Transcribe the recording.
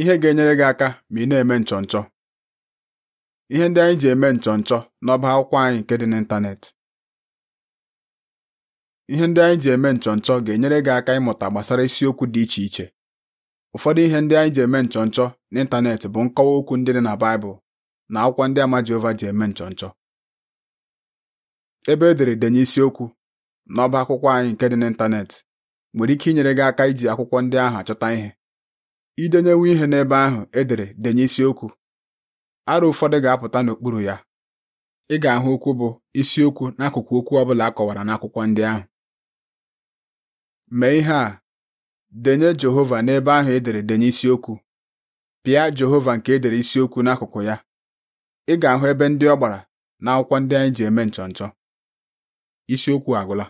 ihe ga-enyere gị aka ma ị na-eme nchọnchọ ihe ndị anyị ji eme nchọnchọ n'ọba akwụkwọ anyị nke dị n'ịntanetị ihe ndị anyị ji eme nchọnchọ ga-enyere gị aka ịmụta gbasara isiokwu dị iche iche ụfọdụ ihe ndị anyị ji eme nchọnchọ n'ịntanetị bụ nkọwa okwu ndị dị na Baịbụl na akwụkwọ ndị ama Jehova ji eme nchọnchọ ebe edere denye isiokwu n'ọba akwụkwọ anyị nke dị n'ịntanetị nwere ike inyere gị aka iji akwụkwọ ndị ahụ achọta ihe Idenyewe ihe n'ebe ahụ e dere denye isiokwu arụ ụfọdụ ga-apụta n'okpuru ya ị ga-ahụ okwu bụ isiokwu n'akụkụ okwu ọ a kọwara n'akwụkwọ ndị ahụ mee ihe a denye Jehova n'ebe ahụ edere dere denye isiokwu pịa Jehova nke e dere isiokwu n'akụkụ ya ị ga-ahụ ebe ndị ọ gbara n'akwụkwọ ndị anyị ji eme nchọnchọ isiokwu agwụla